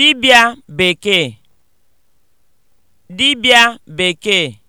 dibịa bekee dibịa bekee